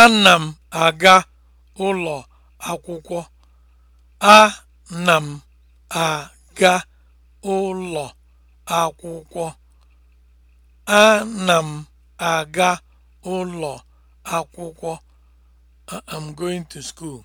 Ana m aga ụlọ akwụkwọ. Ana m aga ụlọ akwụkwọ. na m aga ụlọ akwụkwọ. going to school.